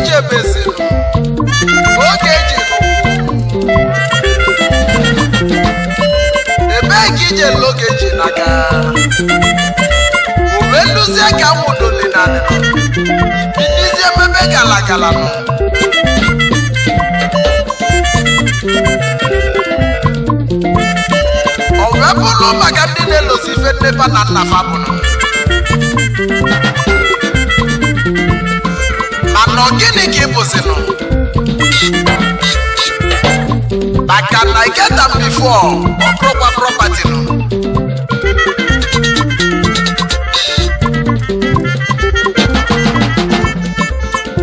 ebee ka ije n'oge eji n'aka uwe nduzie ka na gala gala nọ ọ wee bụrụ maka ndị na-elozi ife nnepa na nna Ọ gịnị ka ị bụzinụ maka na geta bifo ọ prọpati nụ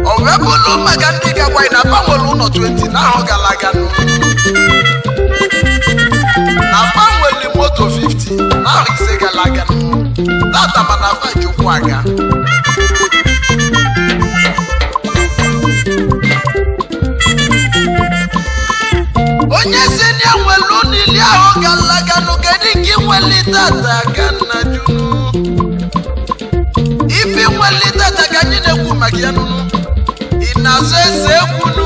o wee bụ ụlọ maka ndị na-agbanwere ụlọ 20 n'ahụ gara aga na moto 50 n'ahụ ise gara aga aga onyezina ewelu n'ili ahụ galaganụ kedu ka inwelite ata ka nna junu ife inwelite ata ka anyị na-ekwu maka ya nụnụ ị na-azụ eze ekwunu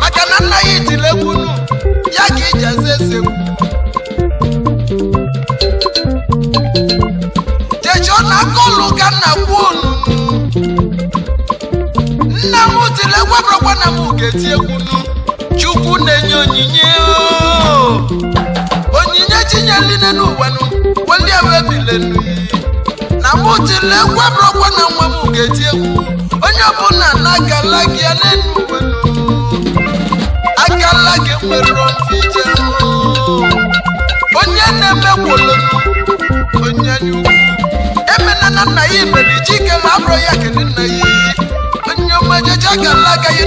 maka na nna ya itile ekwunu ya ka iji azụ eze ekwu jechọ na aka ụlụ ka nna kwuo nnu nna m tilegwa bụrụkwa na m ga-eti ekwunu chukwu na-enye onyinye oh. onyinye chinye niile n'ụwanụ welie wee bilenu na mụtile gwebụrụkwa na nwa m ga-eti egwu onye ọbụla na agala gị ya n'elu uwenu agala nwere mfe onye na-emekwolo onye anya ukwu emena na nna ya iberi chike ma abụrụ ya kene nna ya onye ọma jeje agala aka ya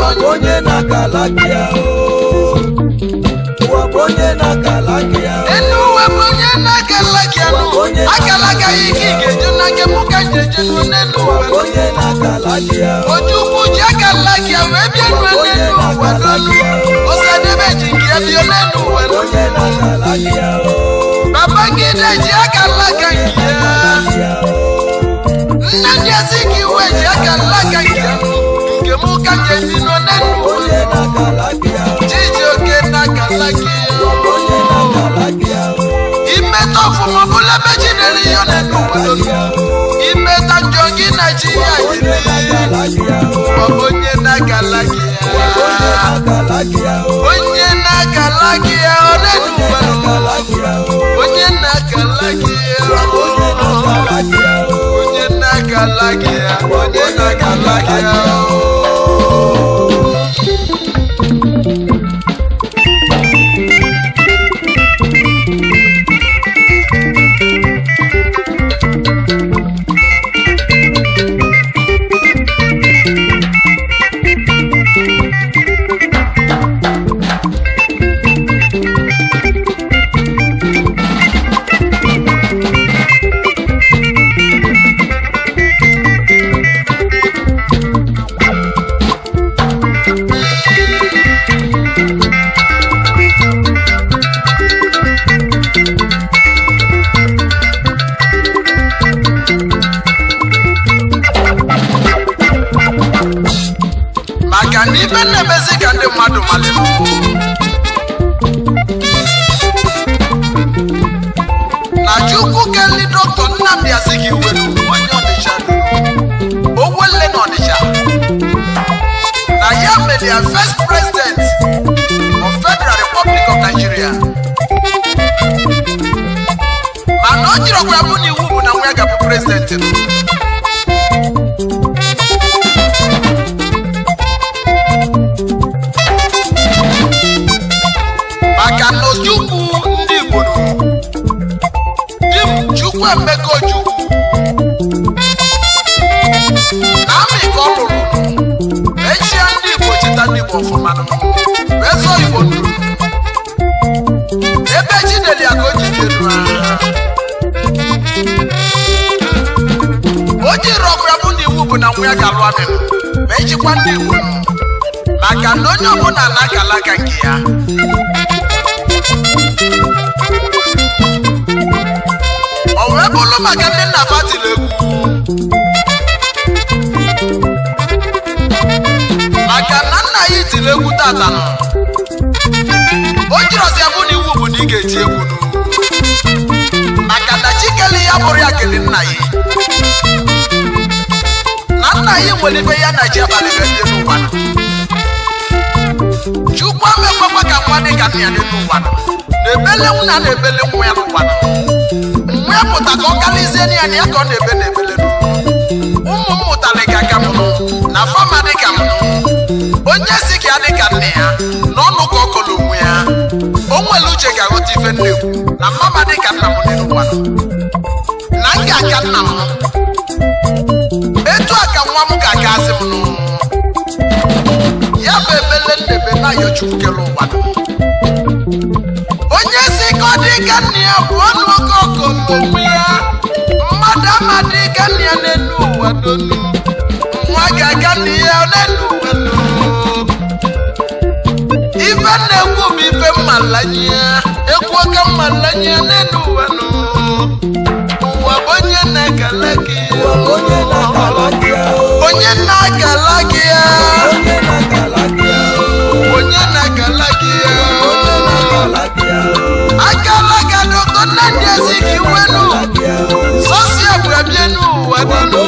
wakpo onye na-akala ya wakpo onye na enu onye na-akala ya onye gị ya ike na nke mụ ka ji eje nụ n'elu ụwa onye na-akala gị ya oju ukwu ji akala gị ya wee bịa nụ n'elu ụwa n'elu ọsadebe e ji nke ya bịa n'elu ụwa onye na-akala gị ya babangide ji na gị ya nna dị ezi ka iwe ji njem ụka nọ kalaki imeta ọfụma ọbụla ebe ji na na ya onye na kalaki onye ya onye na ya onye na kalaki onye na kalaki ya ya prezidenti maka na ojukwu ndị Igbo chukwu bụ ya ga-alụ amị ma ejikwa ndị maka na onye ọbụla na agalaga nke ya o wee bụrụ maka ndị nna batiri egwu maka na nna ya itiri egwu tata o jirọzi abụ na iwu bụ na ị ga-eti egwu maka na Chikele ya bụrụ ya kele nna ya na anyị nwere ibe ya na ji abalị na-ebi n'ụwa chukwu amekwakwa ka nwa dị ka nna ya n'elu ụwa na-ebele nwụna na-ebele nwa ya n'ụwa mgbe ya pụta ka ọ kalizie na ya na ya ka ọ na-ebe na-ebele ụmụ m mụtara ka ka m na fama dị ka m onye si ka ya dị ka nne ya na ọnụ ka ọ kọrọ onwe ya o nwere uche ga-aghọta ife nne kwu na mama dị ka nna m n'elu ụwa na m ga-aka nna m ka nwa m ga ya bụ ebele ndebe na yochukere ụwa onye si ka ọ dị ka nna ya bụ ọnụ oke ọkụ mmụmụ ya mmadụ ama dị ka nna ya n'elu ụwa n'olu nwa ga-aga nna ya ife na-ekwu m ife ya ekwu oke n'elu ụwa bụ onye na-ekele gị onye na-agala gị ya onye na-agala gị ya akala ga n'ụtọ nna ndị ezi ka iwenu sọsi ebrebie n'ụwa nenu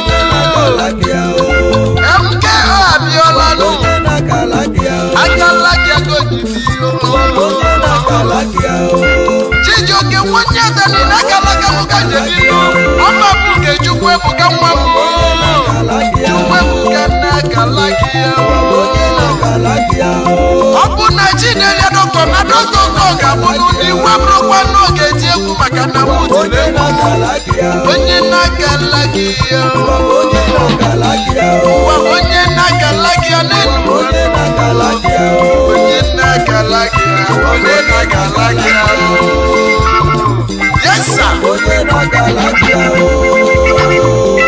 mk abịala nụ akala gị agogide ihe Chijioke nwanne Danina akala mụ oke chukwu ebuka nwa m ọ bụ na chi na-enye na ga-abụ n'ụdị nwa bụrụkwa na ọ ga-eti egwu maka na mụ tiri onye na-agala onye na-agala gị ya n'elu onye na Yes, sir. Oyè bàbá lájà o.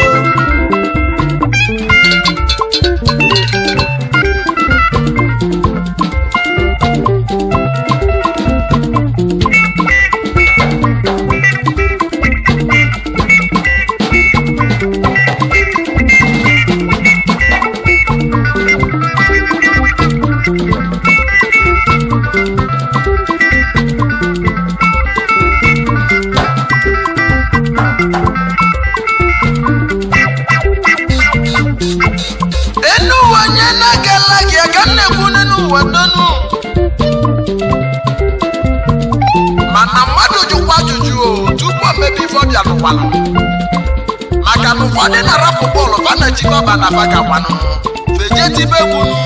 rọba na afa ga-agba n'ụmụ feje tibe gwunu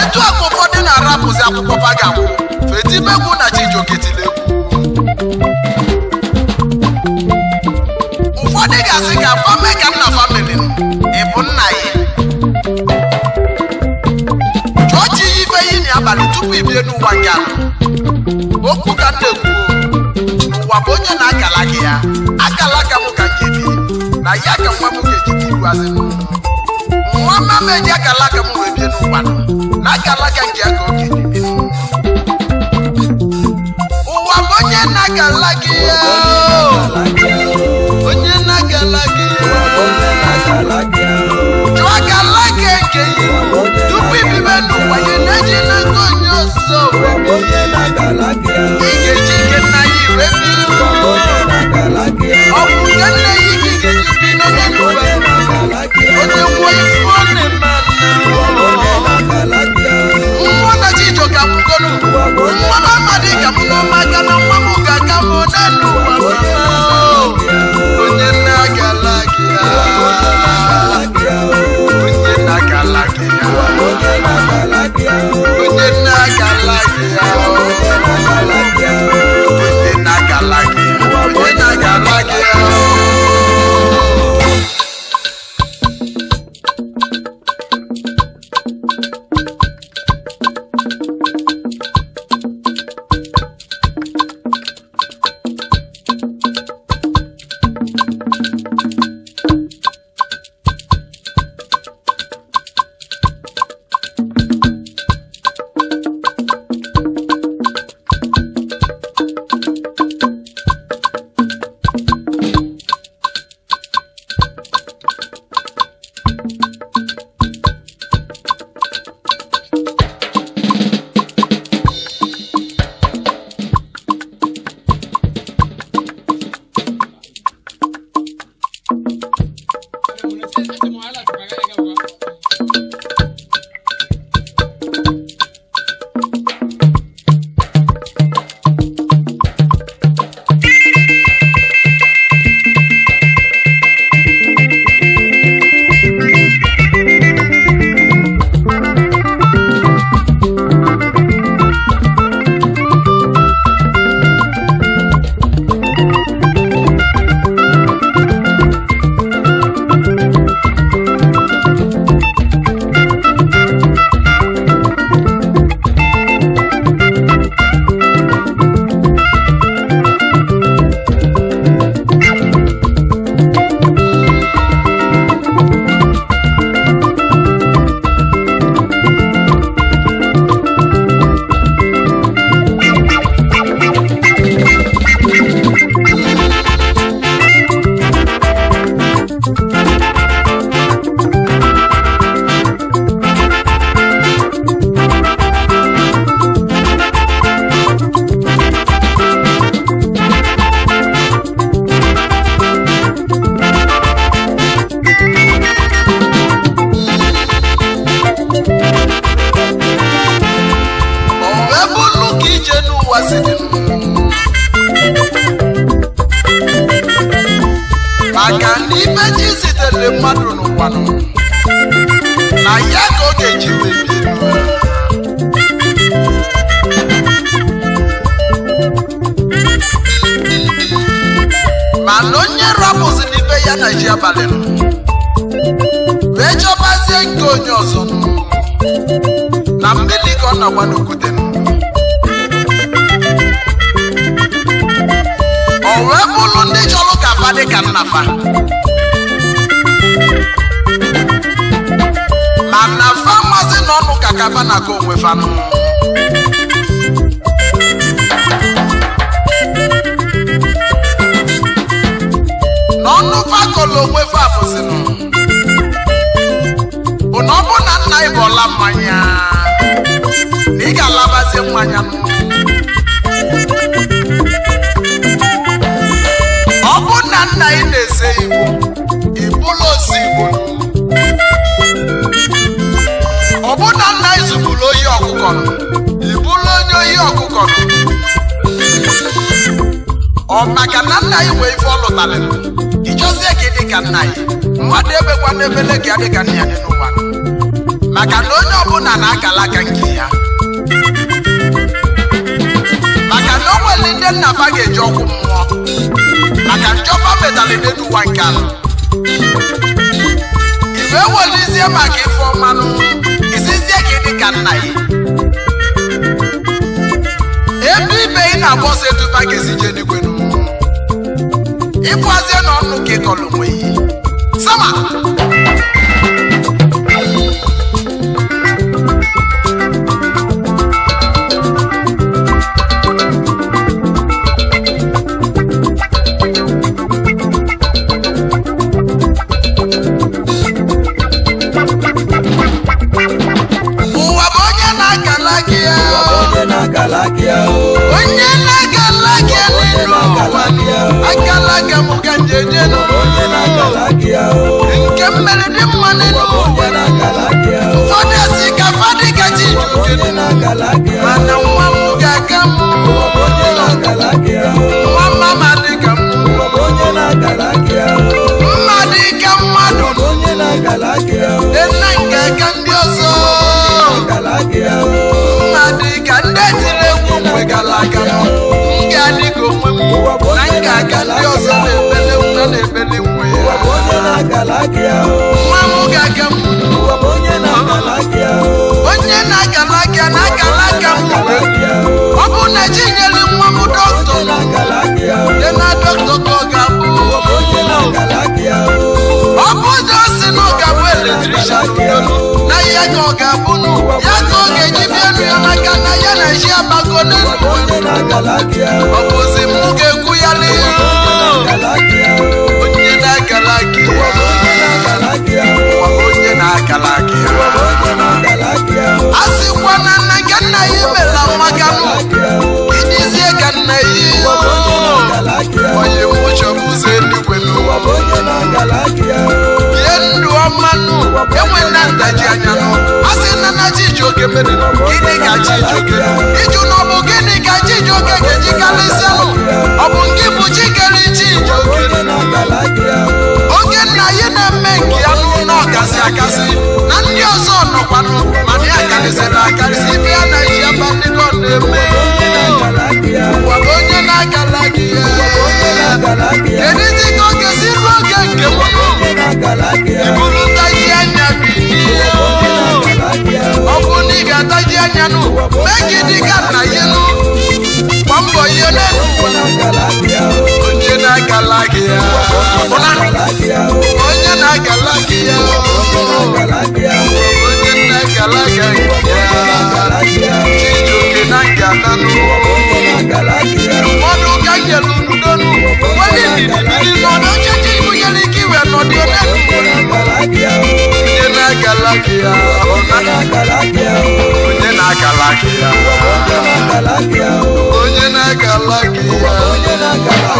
etu akụ ụfọdụ na-arapụzi akwụkwọ fa ga-agwụ fetibe gwu na chijiogetile egwu ụfọdụ ga-asị ga agba mee ka nna famili ị bụ nna ya chụọ chi ya yi na abalị tupu ibie n'ụwa gị ala okwu ka nna ekwuo ụwa bụ onye na-akala gị ya akala ka m na ya ka nwa nwoke Chukwu azị nwa mama eji akala alaka m wee bie n'ụwa na aka alaka nke aka oke dị bi ụwa bụ onye na-aga alaka onye na-aga alaka ọzọ na mmiri ka ọ na-agba n'okwute o wee bụrụ ndị chọrọ ka fa ka nnafa ma nnafa mazi na ọnụ ka kafa na ka onwe fanụ n'ọnụ fakọlụ onwe fa bụzinụ bụ ọ bụ na nna anyị bụ ọla mmanya na ị ga-alabazi mmanya ọ bụ na nna anyị na-ese iwu ịbụla osi igbo ọ bụ na nna anyị zụbụrụ oyi ọkụkọ ịbụla onye oyi ọkụkọ ọ maka na nna anyị nwee ife ọ lụtarị gị dị ka nna anyị mmadụ ebekwa n'ebele gị adịka nna ya dị n'ụwa maka na onye ọbụla na agalaga nke ya maka na o nwere ndị nna ba ga-eji ọgwụ mmụọ maka njọba metara n'ụwa nke ala iwe welizie maka ife ọmanụ isizie gị dị ka nna ya ebe ibe ị na-agba ọsọ eduba ga-esije n'igwe n'ụwa ịbụazie na ọnụ ka ịkọlụ nwe yi. sama mana nwa m aga ka mma dị ka mmadụ nna nke ka ndị ọzọ mma ka ndị e ka na ndị ọzọ na-ebele na na ya ka ọ ga-abụ n'ụwa ya ka ọ ga-eji bịa elu ya maka na ya na ji abago ọ bụzi m ga-ekwu ya n'ihu onye na-agala onye na-agala a na nna ka nna ya imela maka m idizie ka nna ya onye ngaji anya n'ọkụ a sị na nna Chijioke meriri gịnị ka Chijioke ịjụ na ọ bụ gịnị ka Chijioke ga-eji karịsịanụ ọ bụ nke bụ chi kere Chijioke oge nna ya na-eme nke ya n'ụlọ ọkasị akasị na ndị ọzọ nọkwanụ mana ya karịsịrị akarịsị ibe na ihe ebe ndị nọ na-eme onye na-agala gị ya kedu dị ka ọ ga-esi ruo oge nke m atɔgye anya no mɛgye di gana yi no wɔmbɔ yie no onye na galagia ona onye na galagia onye na galagia chijoke na ngana no mɔdu ka yɛlu nudo no wɔde didi didi lɔdɔ kyekye. onye na-agala ya onye na-agala aka onye na ya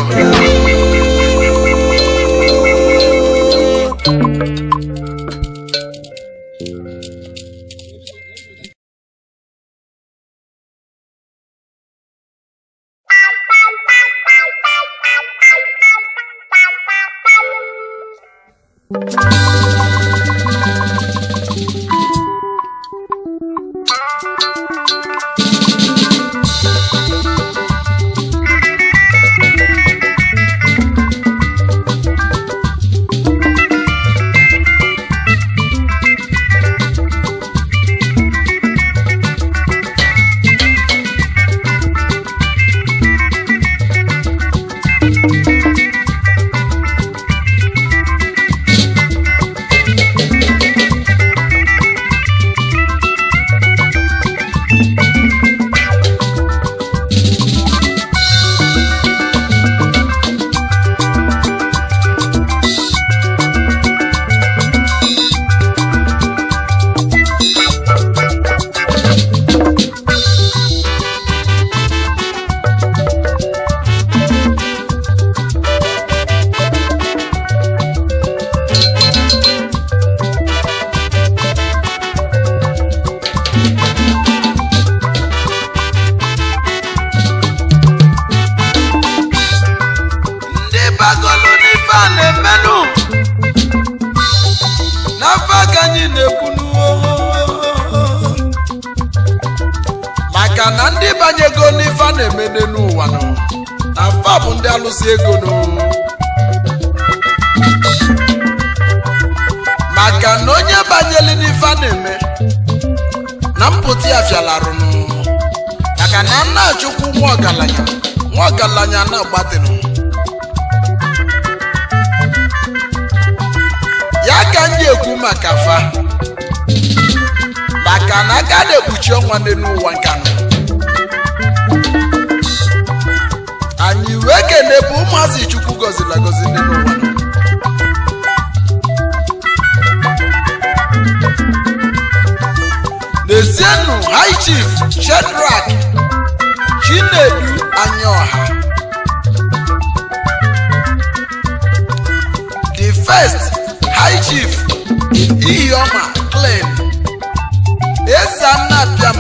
mpụta ya fialarụnụ maka na nna chukwu nwa ọgaranya nwa ọgaranya na ya ka ndị ekwu maka fa maka na aka na-ekpuchi ọnwa n'ụwa ụwa nkanụ anyị wee kene bụ ụmụazị chukwu gọziri agọzi n'ụwa Tizienu High Chief Shedrack Chinedu Anyoha, The First High Chief Ihioma Clem Ezanabiam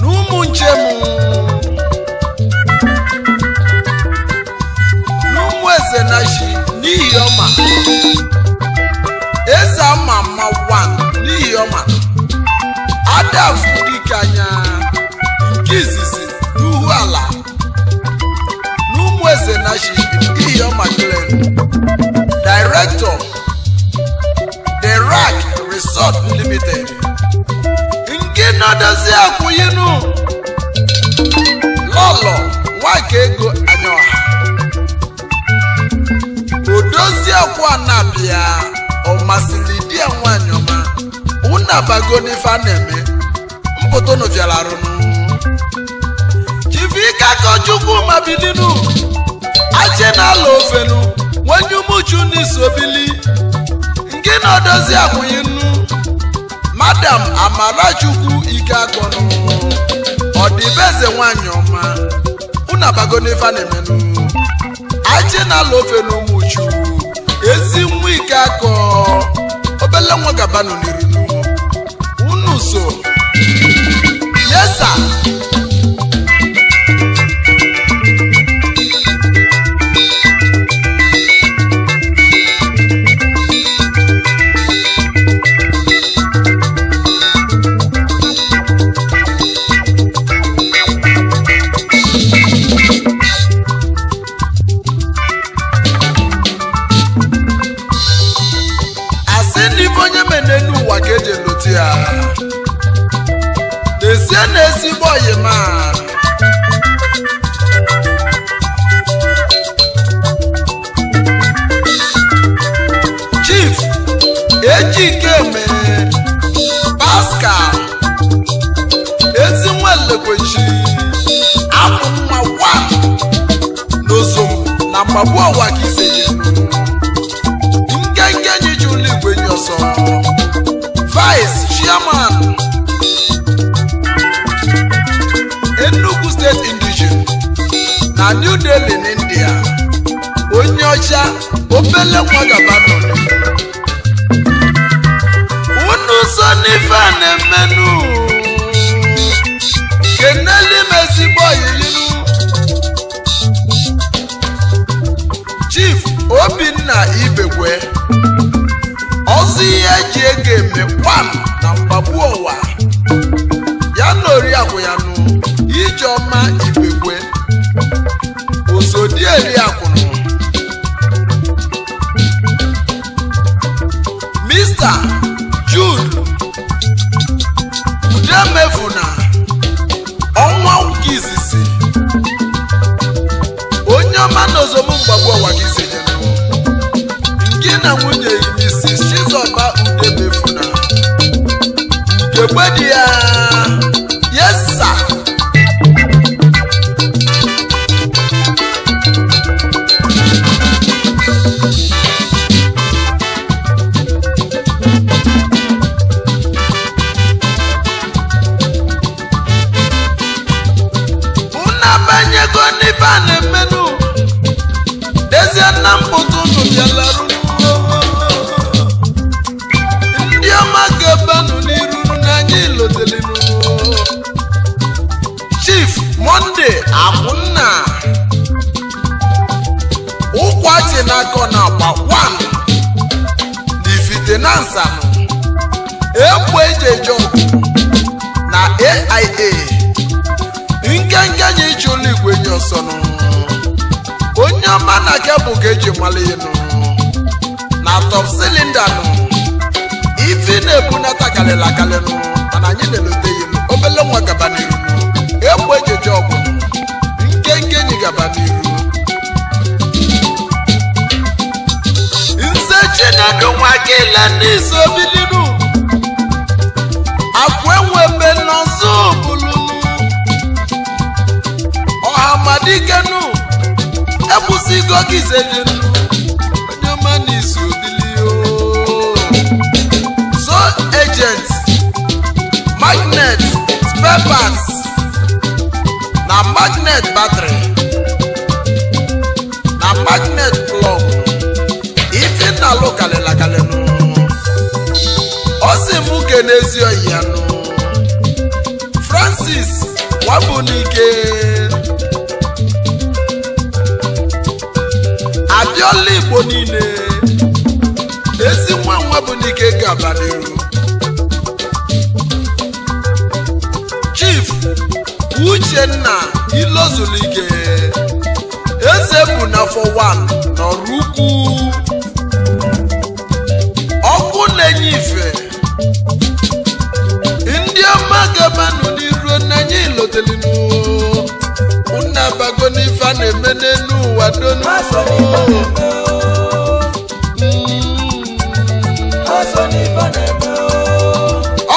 1 n'ụmụ njem n'ụmụ eze na chi n'ihi ọma eze ama ama 1 ndị afụ dike anya nke izizi n'uhu ala na ụmụ eze na iyo maglen director the rack resort limited nke nọdozi akwụyinu lọlọ nwaka ego anya odozi ọkwa na-abịa ọ masịrị di ya nwaanyị ọma na-eme foto nu jere arụnụ chivika kochukwu mabilinu aje na n'ala ofenu nwenye umuchu n'isobili nke na odozi nnu. madam amarachukwu ike akọnụ ọdịbeze nwanyị ọma unabago n'ife na na ala ofenu umuchu ezi nwa ike akọ obele nwa gabanụ n'irinu unu so Yes, sir. akpagbuo ụwa ka iseje nkenke nye ji ụlọ igwe nye ọsọ vice chairman Enugu steeti indigen na New Delhi na onye ọcha obele nwa gabano unu so n'ife a na-emenụ obinna ibekwe ọzọ ihe eji ego eme kwam na mgbagbu ụwa ya na oriakụ ya nụ ijeọma ibekwe osodieriakwụnụ mista jud udemefuna ọnwa nke izizi onye ọma na ozomụ mgbagbu ụwa gị na nwunye yi Mrs. Chizoba Udemefuna nke di ya finansa ekweje jọmpụ na aia nkenke nye iji ụlọ igwe nye ọsọnụ onye ọma na kebụl ga-eji mmalụ elu na top silinda nụ ife na-ebunata kalịla akalịnụ mana anyị na-elote ya obele nwa gaba n'iru ekweje jọmpụ nkenke nyi gaba n'iru na-adụ nwa kela na-eso biliru enwe mbe n'ọzọ bụlụ ọha madikenu ekwụsịgo gị onye ọma magnet spare parts na magnet battery kalịla kalịnụ ọ m ke n'ezi ọhịa ya nụ Francis Wabunike adịọla Igbo niile ezi nwa Nwabunike n'iru. Chief Uchenna Ilozulike eze bụ n'afọ 1 nọrụ ukwu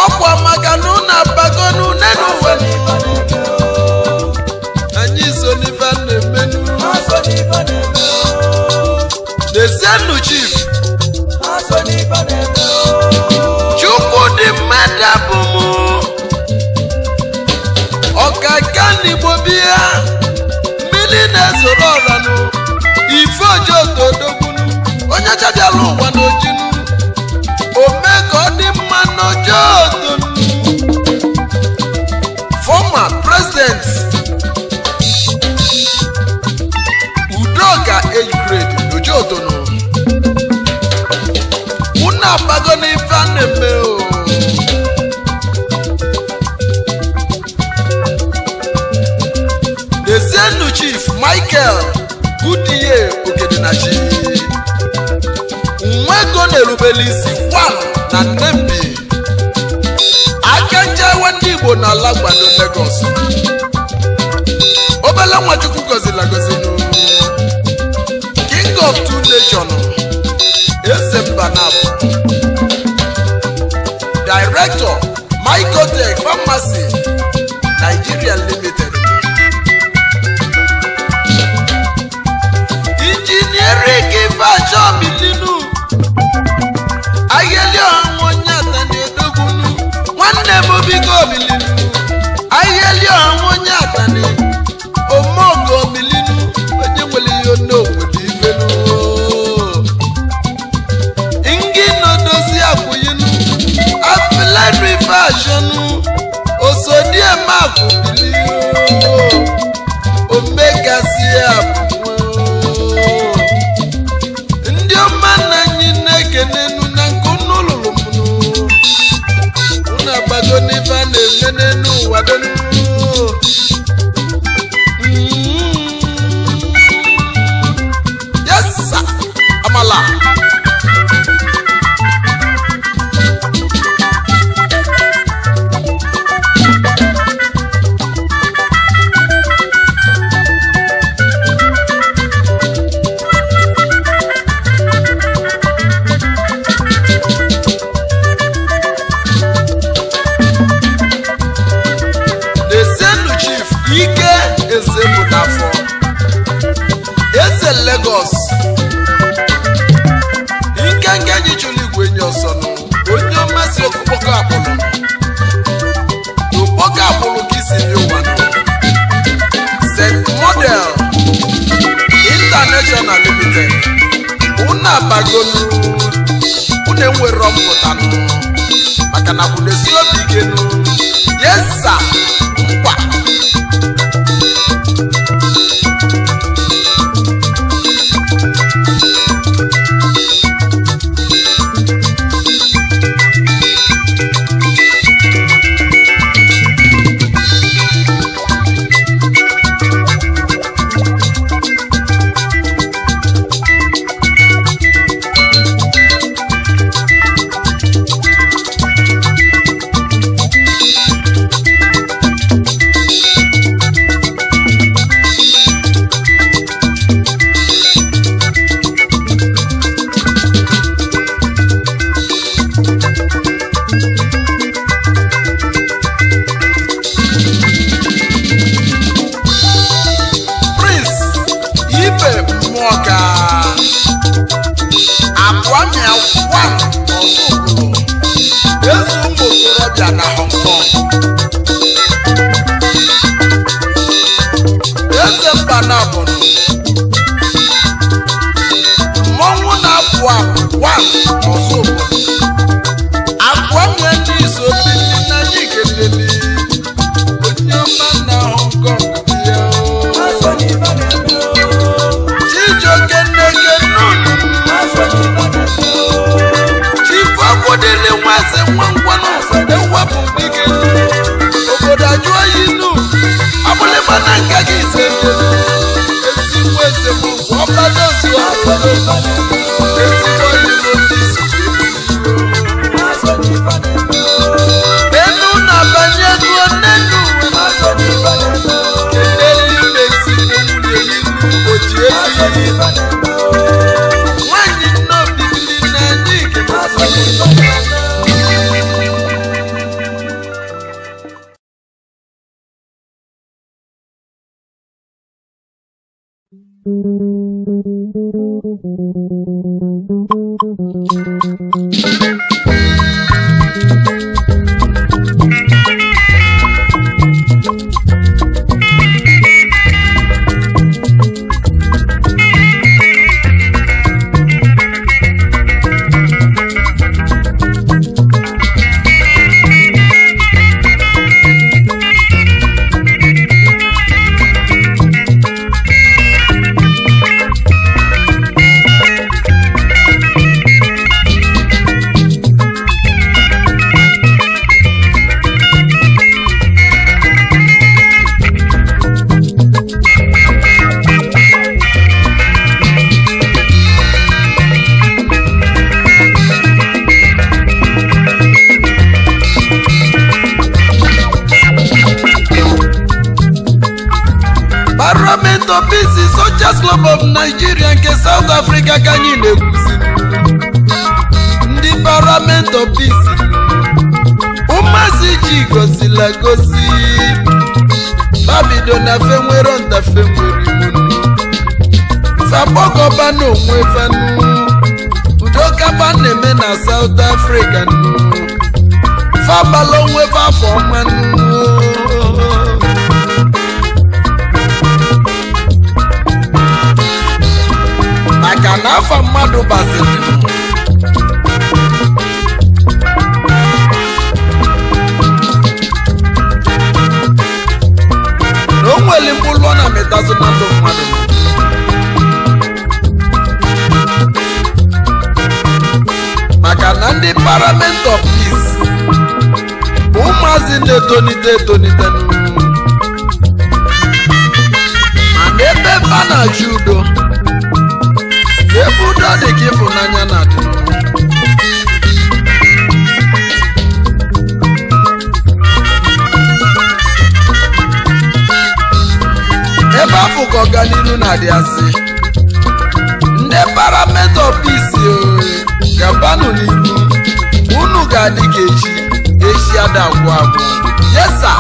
ọkwa maka na ụnụ anyị so n'ife na-emenu na chief chajala ụwa n'oji ome ka ọ dị mma n'ojedu fọma prezident udoka ejgrade n'ojedonu unu agbago n'ife a na-eme o dezienu chief michael goodyear ogedinachi obelisi wan na nnembi akenjewe ndị igbo na ala gbado Lagos obele nwachukwu gọzila gọzinu king of two nation eze mba na director microtech pharmacy Nigeria limited fẹ́ àṣọnu òṣòdì ẹ̀ máa kò bí. na-abagonu une nwere mpụta maka na esi obi gị yesa nkwa Senator Bisi socha Club of Naijiria nke South Afrika ka anyị na-ekwuzi ndị Parliament of Bisi ụmụazị ji gosila gosi fabido na fe nwere nwere iwu fabọgọba fanu udokaba na-eme na South Afrika nụ afọ na n'afọ mmadụ baziri na o nwere na metazụ na mmadụ maka na ndị parliament of peace bụ ụmụazị na-etonite etonite mana ebe a na-achị udo ebe udo dị ka ịfụnanya na adị ebe afọ ka ọganihu na-adị asị ndị parametọ pisi e, gabanụ n'ihu unu ga-adị ka echi echi ada agwụ agwụ yesa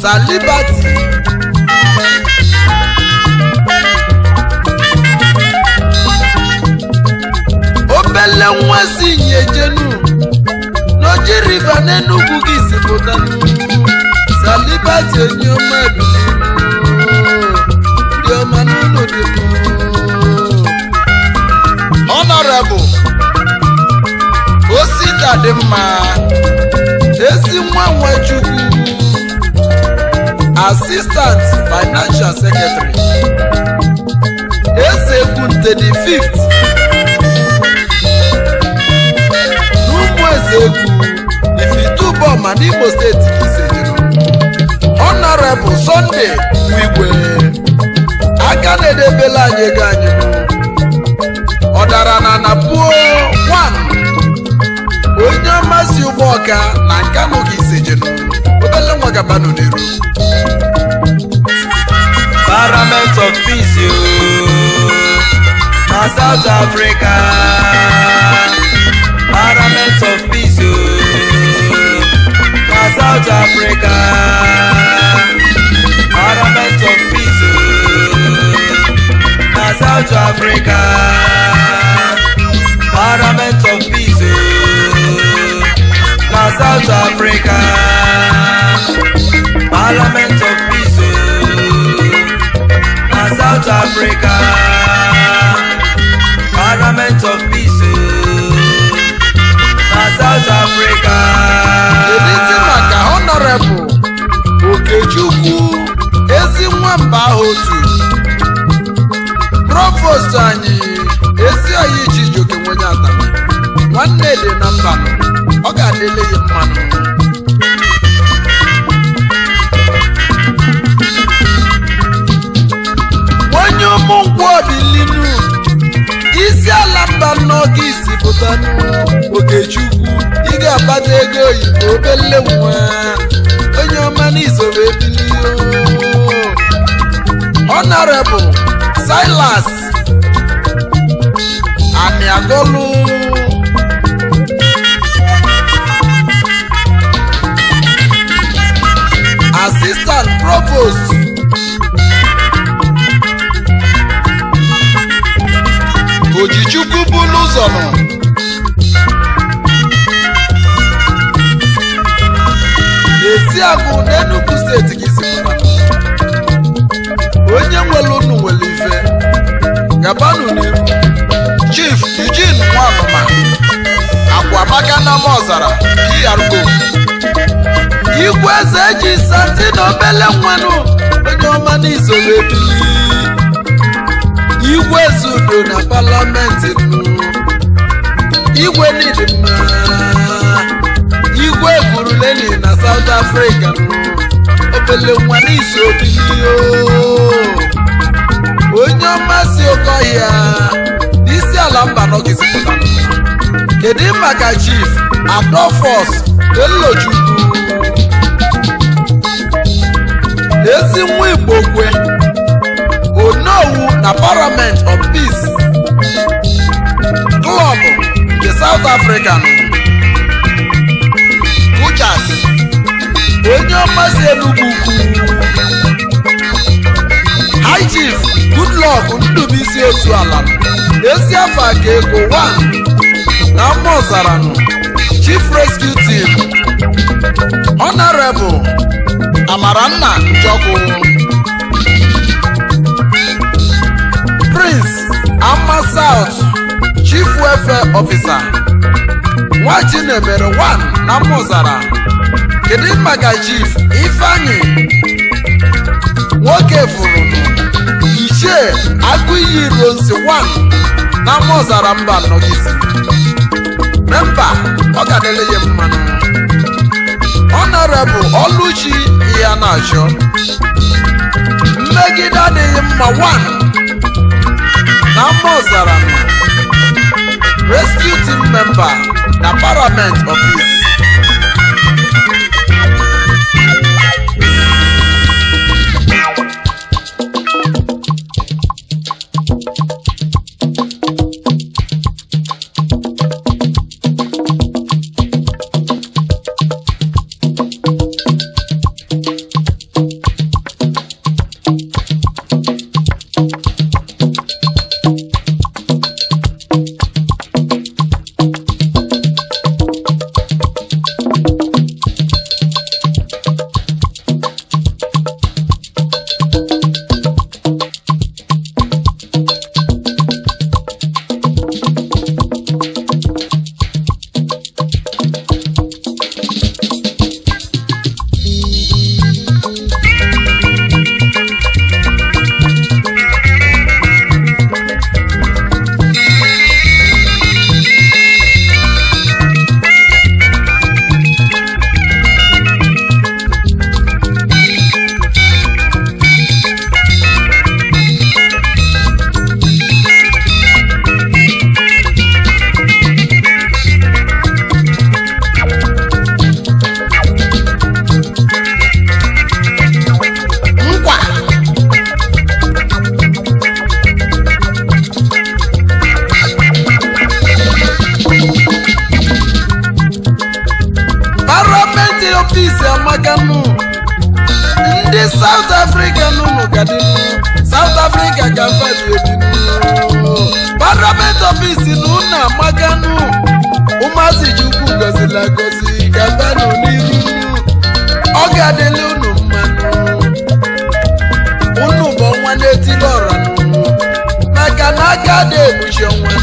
Sister Liberty. obele nwa si nyejenu n'oji riva n'Enugu gị sipụtanụ Sister Liberty enyi ọma ebili ndị ọma n'ụlọ dị Honorable Osita dị mma ezi nwa nwa Chukwu Assistant Financial Secretary Ezekwunte the fifth n'ụmụ Ezekwu Ifituboma n'Imo steeti izejuru Honorable Sunday Igwe aka na-edebela anyị ego anyị ọ dara na napuo onye ọmasị ụgbọ ọka na Nkanu ka izejenu obere nwa gabanu n'iru parliament of peace ooo south africa parliament of peace ooo south africa parliament of peace ooo south africa parliament of peace ooo south africa. parliament of peace na south africa parliament of peace na south africa maka honorable okechukwu ezi nwamba ahụ otu provost anyị ezi ji chijioke nwenye atama nwanne dị na mba ọ ga-adịle ya mmanụ n'ọkịsị pụta okechukwu ị ga-akpata ego oyibo obele nwa onye ọma n'izoro ebilio honorable silas amiagolu assistant provost bụlụ ụzọ nọ n'Eziagụ na Enugu steeti si isi onye nwere unu nwere ife gabanụ n'ihu Chief Eugene Nwanma Akwamaka na Mozara DRO Igwe eze eji santi na obele nwanụ onye ọma n'izoro ebi Eze Udo na Parliament igwe niile mma igwe gwuru leni na South Africa obele nwa n'izu obibi oh. onye ọmasị oke ọhịa n'isi ala mba nọgizi pụtara kedu maka chief adolfos elochukwu ezi nwa igbo kwe onowu na parliament of peace klọb nke South African Kuchas onye ọmasị elu ukwu High Chief Goodluck Ndubuisi Ozuala ezi afa ka ego 1 na mma ọzaranụ Chief Rescue Team Honorable Amaranna Njoku Prince Ama South Chief wefe ọfisa, Nwa na nwere 1 na n'amaọsara, kedu maka Chief Ifeanyi nwoke furu nke ichie Agụ Iyi bụ Nsi 1 n'amaọsara mba nọ gị si? ọ ga-adịla ihe mmanụ. Ọ na-erebu ọlụchi ịhana achọ. Mmegide adịghị mma 1 n'amaọsara mba rescue team member na parliament of Imo bịanụ ụmụazị ji ukwu gozila gozi gabanụ n'iru unu ọ ga-adịla unu mmanụ unu bụ ọnwa na-etili ọra n'unu maka na aga dị ebuchi ọnwa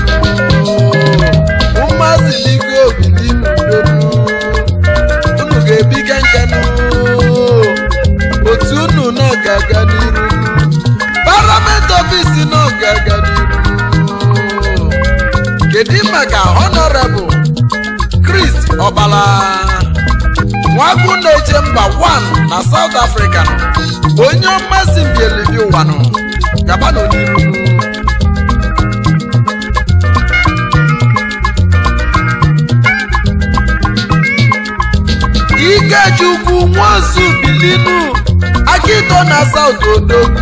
kedu maka honorable Chris Obala nwagwu na-eje mba 1 na South Africa onye mmasị mbielidi ụwa gaba n'oniru Ikechukwu Nwozu Akito na South Odogwu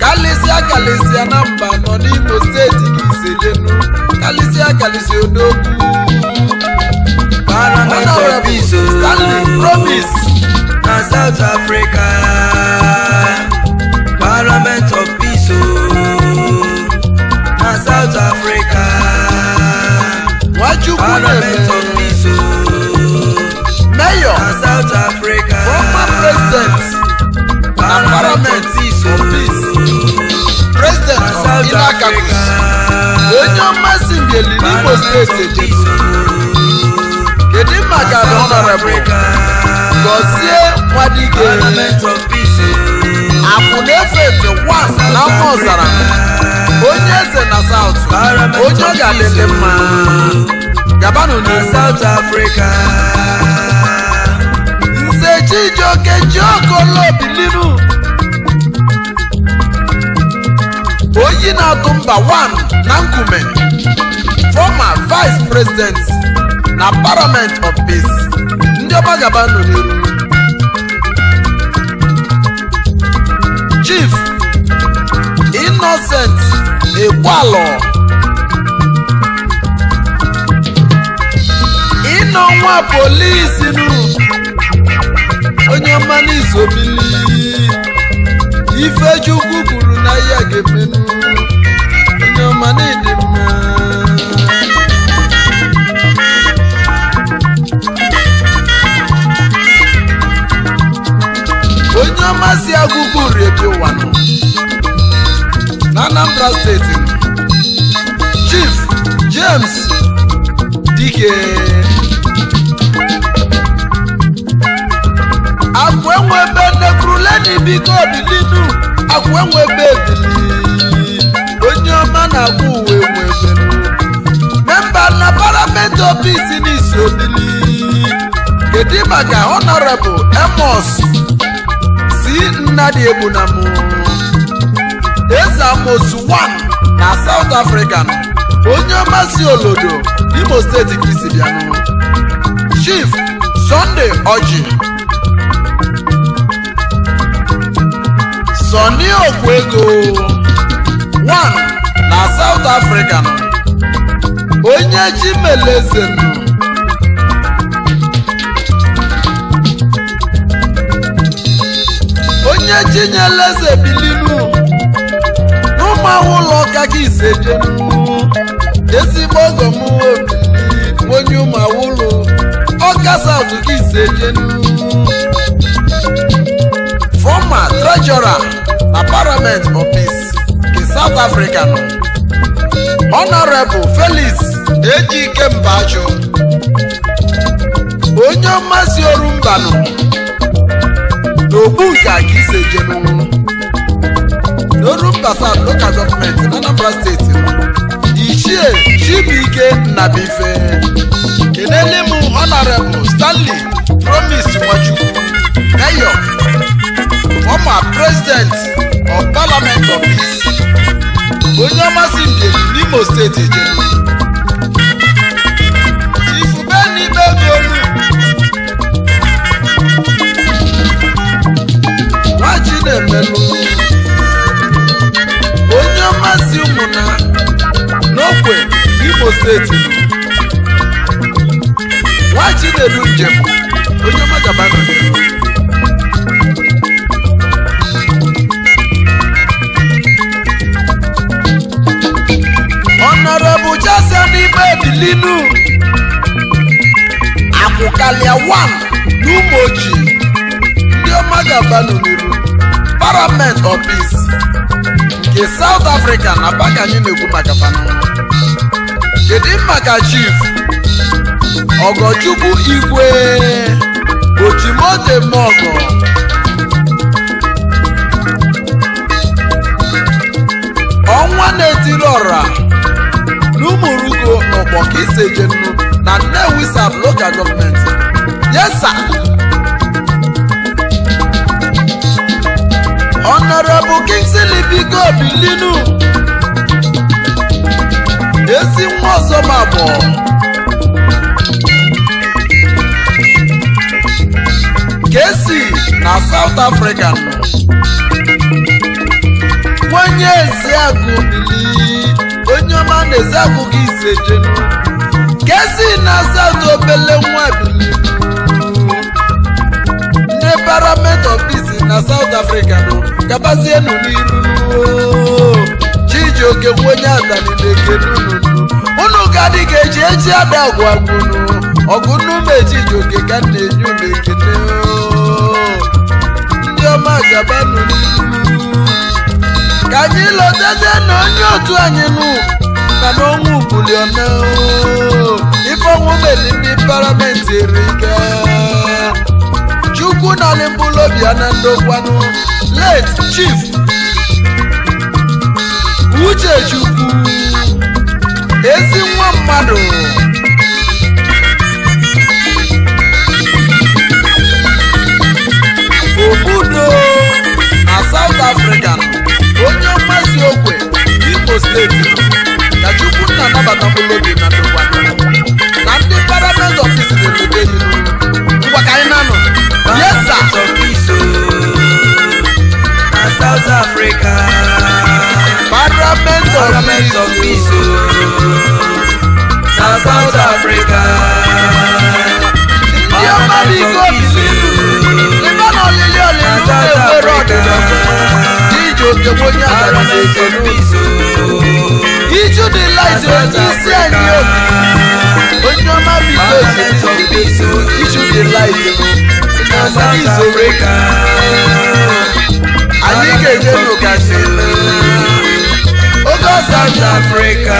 kalịsịa kalịsịa na mba nọ n'Imo steeti na Iselenu kalisi akalisi odogwu Stanley Promise na South Africa Parliament of Peace na South Africa Parliament of Peace peace oh. na South Africa peace President Parliament of Peace President of Inakakus Ebili Igbo steeti ejedu kedu maka na ọnọrọbụ gọzie nwadike na efe efe was na mma ọzara onye eze na saut onye ọ ga-adịdị mma gabanụ na South Africa nze Chijioke Obilinu oyi na-atụ mba 1 na nkume former vice president na parliament of peace ndị ọbajaba nọ n'iru chief innocent ekwalọ ịnọ nwa polisi nụ onye mmanụ izobili ifechukwu kwuru na ihe ga-emenụ onye ọma na onye ọmasị agụgụ redio wanụ na Anambra steeti Chief James Dike akwa enwebe nekruleni biko bilinu akwa enwebe ebili onye ọma na-agba uwe nwebelu memba na parliament office n'isi obili kedu maka honorable emos nnadi egbuna m eze amosu 1 na South Africa onye ọmasị olodo Imo steeti ka Chief Sunday Oji Sọni Okwego 1 na South Africa onye Chimeleze onye chinyela eze bilinu n'ụmụahụ ụlọ ụka gị izejenu ezigbo ogo m obili onye ụlọ ọka saụtụ gị izejenu fọma trejọra na parliament of peace the south nọ honorable felix ejike mbajụ onye ọmasị orumbanụ n'Ogbunka ka ise jenu n'Orumba South local government n'Anambra steeti ichie Chibuike Nnabuife kenele m honorable Stanley Promise Nwachukwu mayor former president of parliament of onye ọmasị mbem n'Imo steeti jenu Chinelelu onye mmasị ụmụna n'okwe Imo steeti nwa Chinelu njem onye magabana n'ime edili inu. akwụkalịa 1 n'ụmụ ojii ndị ọma ga-aba n'iru parliament of peace nke south africa na baka anyị na-ekwu maka pana kedu maka chief ọgọchukwu igwe ochimode mọgọ ọnwa na-etiri ọra n'ụmụrugo n'ụkpọ ka iseje nnu na nnewi sab local gọọmenti yes sir Honorable Kingsley Biko linu ezi nwa ọzọ ma abụọ Kesi na South Africa nwenye agụ bili onye ọma na ezi gị ise jenu Kesi na South obele nwa bili n'ebaramento na South Africa nụ gabazienụ n'iru Chijioke onye adani na-ekenunu unu gadị ga-eji eji ada agwagwunu ọgụnnume Chijioke ka na enye unu ekene ndị ọma gabanụ n'iru ka anyị lọtazie na onye otu anyị nụ na n'ọnwa ugbulionao ife ọnwụ meli ndị paramenti erika chukwu n'ọlịmbụlụ obi ya na ndokwanụ late chief uchechukwu ezi nwa mmadụ obudo na south africa onye mmasị okwe imo steeti na chukwu nna anabata mkpụrụ obi na ndokwanụ na ndị parliament office dị n'ude ngwa ka anyị na yes sir South Africa Parliament of Parliament of Peace na South Africa ndị ọmara iko bizi ebe na olili olili Ijù di láìsí ojú sí ẹ̀yìn o. Ojú ọmọ mi tó ṣe ijù di láìsí. Ọmọ mi ìṣòro kà. Ayé gègé ló kà sí lọ. Ó gọ́ South Africa.